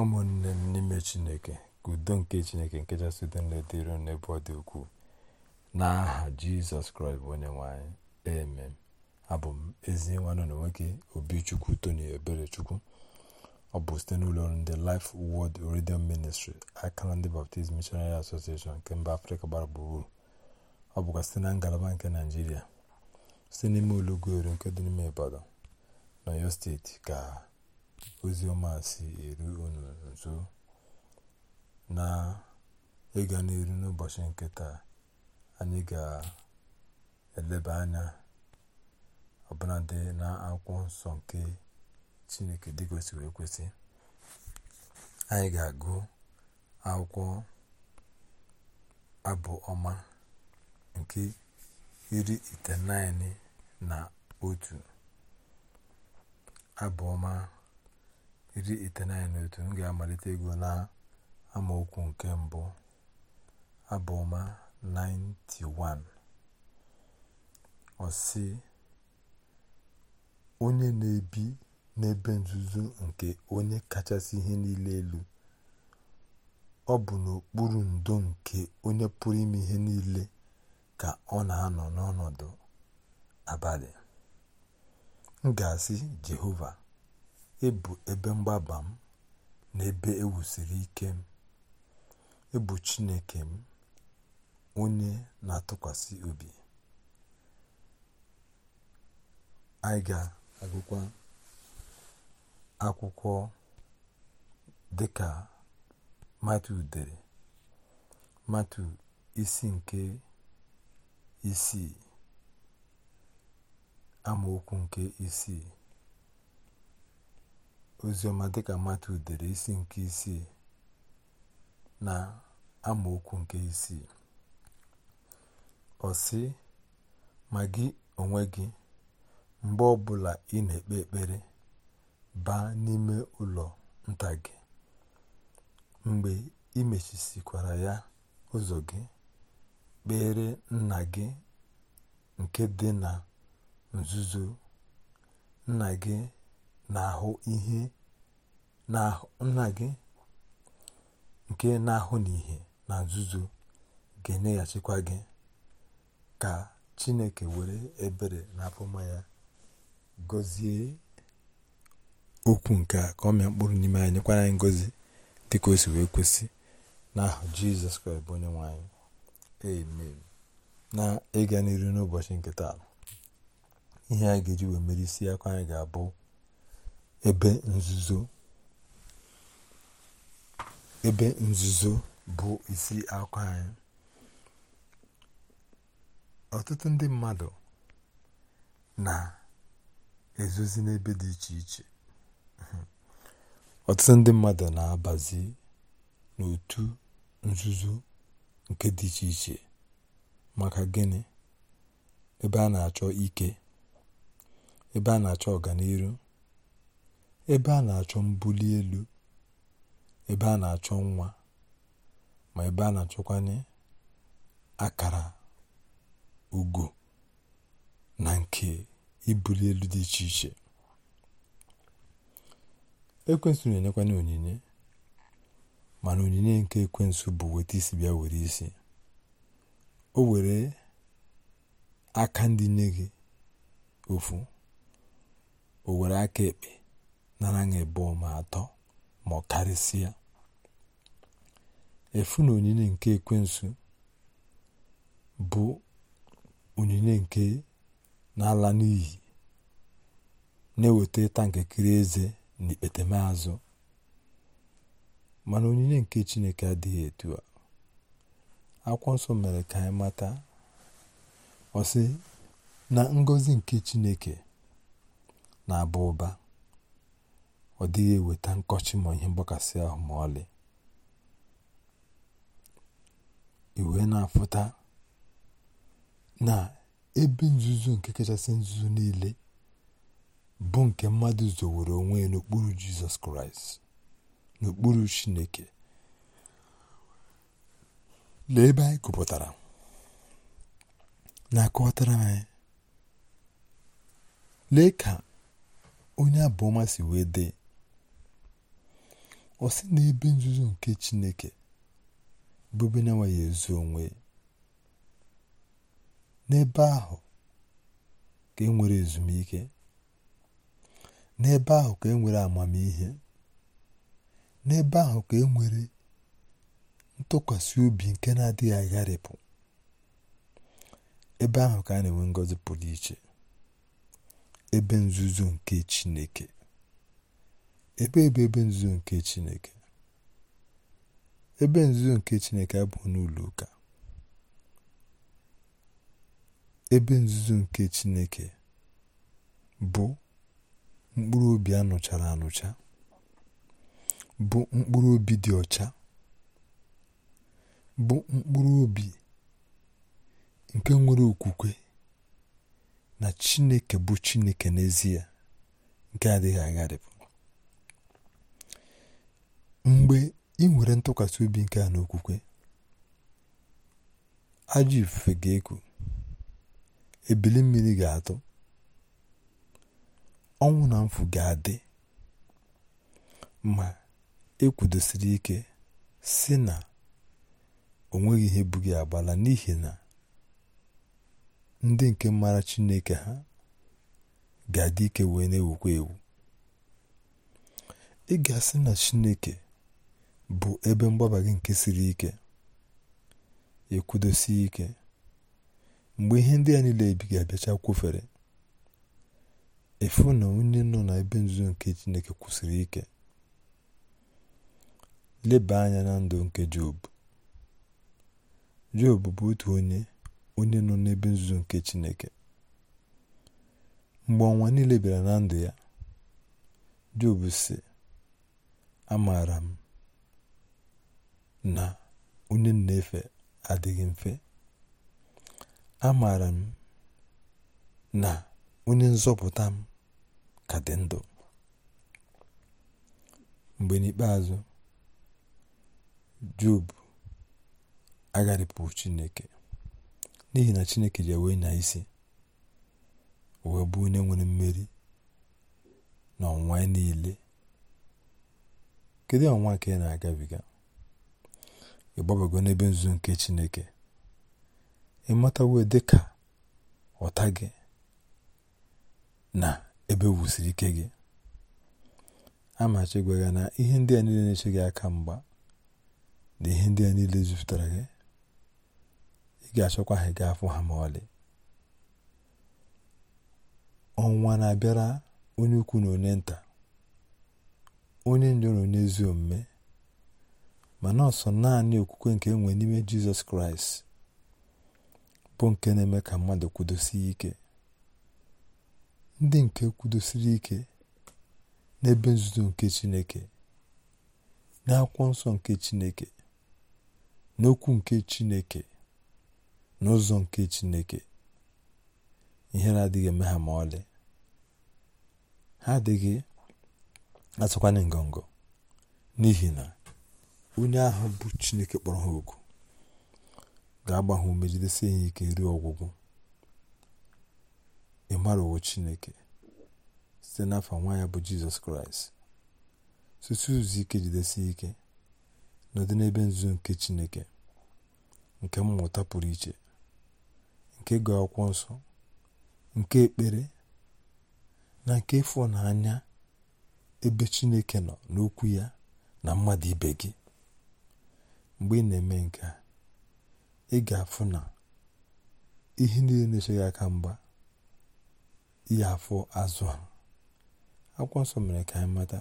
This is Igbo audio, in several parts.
ụmụnne m n'ime chineke ka udo nke chineke nke kachasị udo na-edere n'ebe ọ dị ukwuu n'aha jizọs kraịst bụ onye nwanyị amen abụ m ezi nwanne na nwoke obichukwu tony eberechukwu ọ bụ site n'ụlọ ọrụ ndị life word radio ministry akara ndị baptist missionary association nke mba afrịka gbara gburugburu ọ bụkwa site na ngalaba nke naijiria site n'ime ụlọ ugweru nke dị n'ime ibadan n'oyo steeti ka oziọma si eru unu nso na ịga n'iru n'ụbọchị nke anyị ga-eleba anya ọbụladị na akwụkwọ nsọ nke chineke dị kwesịrị ekwesị anyị ga-agụ akwụkwọ abụ ọma nke iri itenaịnị na otu abụ ọma iri iteghete na otu m ga-amalite ego na amaokwu nke mbụ abụma 91 ọ onye na-ebi n'ebe nzuzo nke onye kachasị ihe niile elu ọ bụ n'okpuru ndo nke onye pụrụ ime ihe niile ka ọ na-anọ n'ọnọdụ abalị m ga-asị jehova Ebu ebe mgbaba m na ebe ewusiri ike m. Ị bụ Chineke m, onye na-atụkwasị obi. Anyị ga-agụkwa akwụkwọ dịka Matu dere, Matu isi nke isii amaokwu nke isii oziọma dịka matu dere isi nke isii na amaokwu nke isii ọ sị ma gị onwe gị mgbe ọbụla ị na-ekpe ekpere baa n'ime ụlọ nta gị mgbe ị mechisikwara ya ụzọ gị kpere nna gị nke dị na nzuzo nna gị na-ahụ ihe na nna gị nke na-ahụ n'ihe na nzuzo ga-enyeghachikwa gị ka chineke were ebere na apụma ya gọzie okwu nke a ka ọ mịa mkpụrụ n'ime anyị nyekwara anyị ngọzi dịka o si wee kwesị n'ahụ jizọs kraịst bụ onye nwe anyị amen na ịga n'iru n'ụbọchị nke taa ihe anyị ga-eji wee mere isi akwa anyị ga-abụ ebe nzuzo ebe nzuzo bụ isi akụ anyị ọtụtụ ndị mmadụ na-ezozi n'ebe dị iche iche ọtụtụ ndị mmadụ na-abazi n'otu nzuzo nke dị iche iche maka gịnị ebe a na-achọ ike ebe a na-achọ ọganihu. ebe a na-achọ mbuli elu ebe a na-achọ nwa ma ebe a na-achọkwanye akara ugo na nke ibuli elu dị iche iche ekwensu na-enyekwanye onyinye mana onyinye nke ekwensu bụ weta isi bịa were isi o were aka ndị nye gị ofu o were aka ekpe narana ma atọ ma ọ karịsịa efu na onyinye nke ekwensu bụ onyinye nke n'ala ala n'iyi na-eweta ịta nkekere eze na ikpetemazụ mana onyinye nke chineke adịghị etu a akwụkwọ nsọ mere ka anyị mata ọsị na ngọzi nke chineke na-aba ụba ọ dịghị eweta nkọchi ma ihe mgbakasị ahụ ma ọlị iwe na-afụta na ebe nzuzo nke kachasị nzuzo niile bụ nke mmadụ zowere onwe n'okpuru jizọs kraịst n'okpuru chineke lee ebe anyị gụpụtara na-akọwatara anyị lee ka onye abụọma si wee dee ọ sị na ebe nzuzo nke Chineke bụ n'enweghị na-enweghị ezu onwe n'ebe ahụ ka e nwere ezumike n'ebe ahụ ka e nwere amamihe n'ebe ahụ ka e nwere ntụkwasị obi nke na-adịghị agharịpụ ebe ahụ ka a na-enwe ngọzi pụrụ iche ebe nzuzo nke Chineke ebe ebe ebe nzuzo nke Chineke ebe nzuzo nke Chineke abụghị n'ụlọ ụka ebe nzuzo nke Chineke bụ mkpụrụ obi anụchara anụcha bụ mkpụrụ obi dị ọcha bụ mkpụrụ obi nke nwere okwukwe na Chineke bụ Chineke n'ezie nke adịghị agharịpụ mgbe ị nwere ntụkwasị obi nke a n'okwukwe ajọ ifufe ga-eku ebili mmiri ga-atụ ọnwụ na mfu ga-adị ma ekwudosiri ike si na onweghị ihe bụ gị agbala n'ihi na ndị nke mara Chineke ha ga-adị ike wee na-ewukwa ewu ị ga-asị na Chineke bụ ebe mgbaba gị nke siri ike ekwudosie ike mgbe ihe ndị a niile ebighị abịacha kwụfere efu na onye nọ na ebe nzuzo nke Chineke kwụsịrị ike leba anya na ndụ nke Job Job bụ otu onye onye nọ n'ebe nzuzo nke Chineke mgbe ọnwa niile bịara na ndụ ya Job sị amaara m na onye na-efe adịghị mfe a amaara m na onye nzọpụta m ka dị ndụ mgbe n'ikpeazụ job agharịpụghị chineke n'ihi na chineke ji wee na isi wee bụ onye nwere mmeri na ọnwa niile kedu ọnwa ka ị na-agabiga ịgbabago n'ebe nzu nke chineke ịmatawo dịka ọta gị na ebe wusiri ike gị amachi gwaga na ihe ndị a niile na-eche gị aka mgba na ihe ndị a niile jupụtara gị ị ga-achọkwa ha gaa afọ ha ma ọlị ọnwa na-abịara onye ukwu na onye nta onye njọ na onye ezi omume ma na ọsọ naanị okwukwe nke enwe n'ime jizọs kraịst bụ nke na-eme ka mmadụ kwudosie ike ndị nke kwudosiri ike n'ebe nzuzo nke chineke n'akwụkwọ nsọ nke chineke n'okwu nke chineke n'ụzọ nke chineke ihere adịghị eme ha ma ọlị ha adịghị atụkwanye ngọngọ n'ihi na onye ahụ bụ Chineke kpọrọ ha oku ga-agba ha ume ya ike ruo ọgwụgwụ ịmarawo Chineke site n'afọ nwa ya bụ Jizọs Kraịst site ụzọ ike jidesie ike n'ọdị n'ebe nzuzo nke Chineke nke mmụta pụrụ iche nke ga akwụkwọ nsọ nke ekpere na nke ịfụnanya ebe Chineke nọ n'okwu ya na mmadụ ibe gị mgbe ị na-eme nke a ị ga-afụ na ihe niile na esoghị aka mgba ihe afọ azụ a akwụkwọ nsọ mere ka anyị mata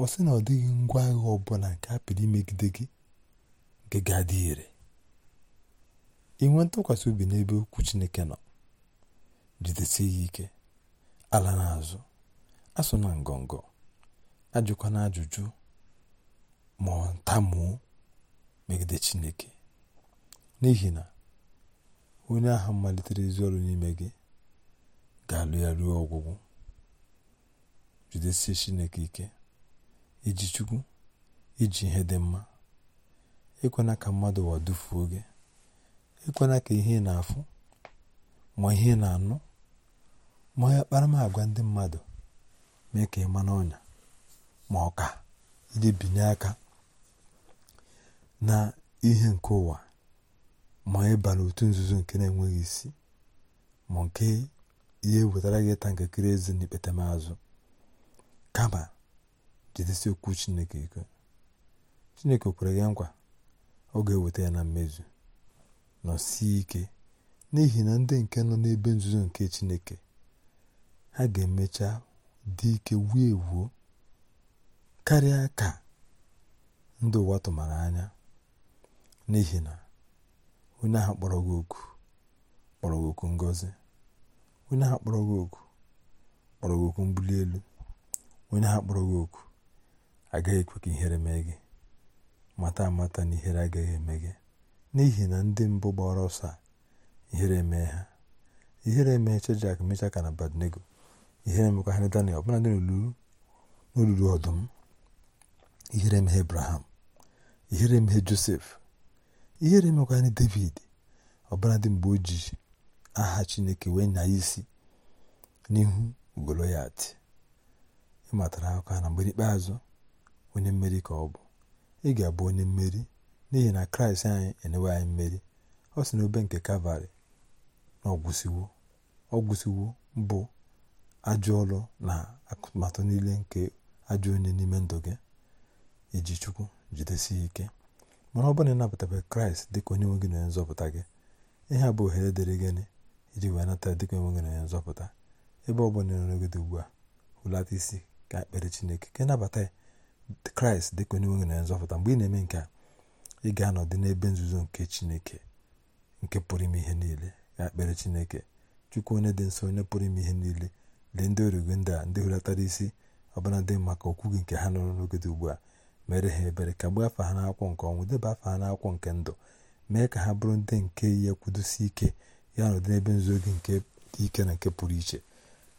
ọ sị na ọ dịghị ngwa agha ọbụla nke a pịrị imegide gị nke ga-adị ire inwe ntụkwasị obi n'ebe okwu Chineke nọ jidesi ya ike ala n'azụ asụ na ngọngọ ajụkwana ajụjụ ma ọ megide chineke n'ihi na onye ahụ malitere ezi ọrụ n'ime gị ga-alụ ya ruo ọgwụgwụ jidesie chineke ike iji chukwu iji ihe dị mma ekwena ka mmadụ ụwa dufuo gị ekwena ka ihe na-afụ ma ihe na-anụ ma ya agwa ndị mmadụ mee ka ịma ma n'ọnya ma ọ ka iji binye aka na ihe nke ụwa ma ịba e n'otu nzuzo nke na-enweghị isi ma nke ihe wetara gị ịta ntakịrị eze na azụ kama jidesi okwu chineke ike chineke kwere ya nkwa ọ ga-eweta ya na mmezu nọ nọsie ike n'ihi na ndị nke nọ n'ebe nzuzo nke chineke ha ga-emecha dị ike wuo ewuo karịa ka ndị ụwa tụmara anya n'ihi na onye ahụ kpọrọ gị oku kpọrọ gị oku ngozi onye ahụ kpọrọ gị oku kpọrọ gị oku mbuli elu onye ahụ kpọrọ gị oku agaghị ekwe ka ihere mee gị mata amata na ihere agaghị eme gị n'ihi na ndị mbụ gbara ọsọ a ihere emee ha ihere emee Shedrak mecha ka na Badnego ihere emekwa ha Daniel ọbụla dị n'olulu ọdụm ihere emeghe ebraham ihere emeghe Josef ihere mekwara David dị mgbe o ji aha Chineke wee nya isi n'ihu Goloyat ịmatara aka na mgbe ikpeazụ onye mmeri ka ọ bụ ị ga-abụ onye mmeri n'ihi na kraịst anyị enyewe anyị mmeri ọ sị n'obe nke kalvarị na ọgwụsiwo ọgwụsiwo bụ ajụọlụ na akụmatụ niile nke ajọ onye n'ime ndụ gị iji chukwu jidesie ike mana ọ bụrụ na ịnabatabeghị kraịst dịka onye nwe gị na nzọpụta gị ihe a bụ ohere dịrị gịnị iji wee nata dịka onye nwe gị na nzọpụta ebe ọ bụla nọrọgide ugbu a hụlata isi ka ekpere chineke ka ịnabata kraịst dịka onye nwe gị na nzọpụta mgbe ị na-eme nke a ị ga-anọdị n'ebe nzuzo nke chineke nke pụrụ ime ihe niile ka ekpere chineke chukwu onye dị nsọ onye pụrụ ime ihe niile lee ndị origo ndị a ndị isi ọbụna dị maka okwu gị nke ha nọrọ n'ogede ugbu a mere ha ebere kagbuo afa ha n'akwụkwọ nke ọnwụ deba afa ha n'akwụkwọ nke ndụ mee ka ha bụrụ ndị nke ihe kwudosi ike ya na ụdị n'ebe nzuzo gị nke dị ike na nke pụrụ iche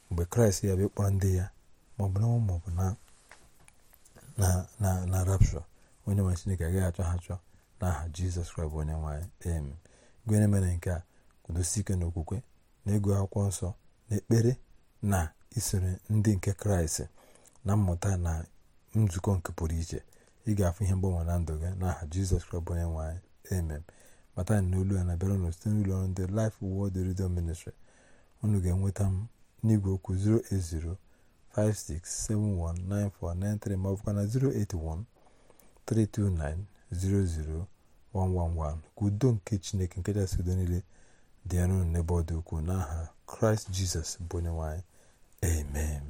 mgbe kraịst ya bụ kpọrọ ndị ya maọbụ n'ọnwụ maọbụ na na rapshọ onye nwere chineke agaghị achọ ha chọọ n'aha aha jizọs kraịst bụ onye nwanyị em gụnyere mere nke a kwudosi ike na okwukwe na ego akwụkwọ nsọ na ekpere na isoro ndị nke kraịst na mmụta na nzukọ nke pụrụ iche ị ga-afụ ihe mgbanwe na ndụ gị n'aha jizọs kraịst bụ onye nwanyị. amen bata anyị n'olu ya na-abịara ụnụ site n'ụlọ ọrụ ndị lif Word Radio Ministry unu ga-enweta m n'igwe okwu 08056719493 ma ọ bụkwa na 08132900111 ka udo nke chineke nke kachasị udo niile dị arụ n'ebe ọ dị ukwuu n'aha kraịst jizọs bụ onye nwanyị. amen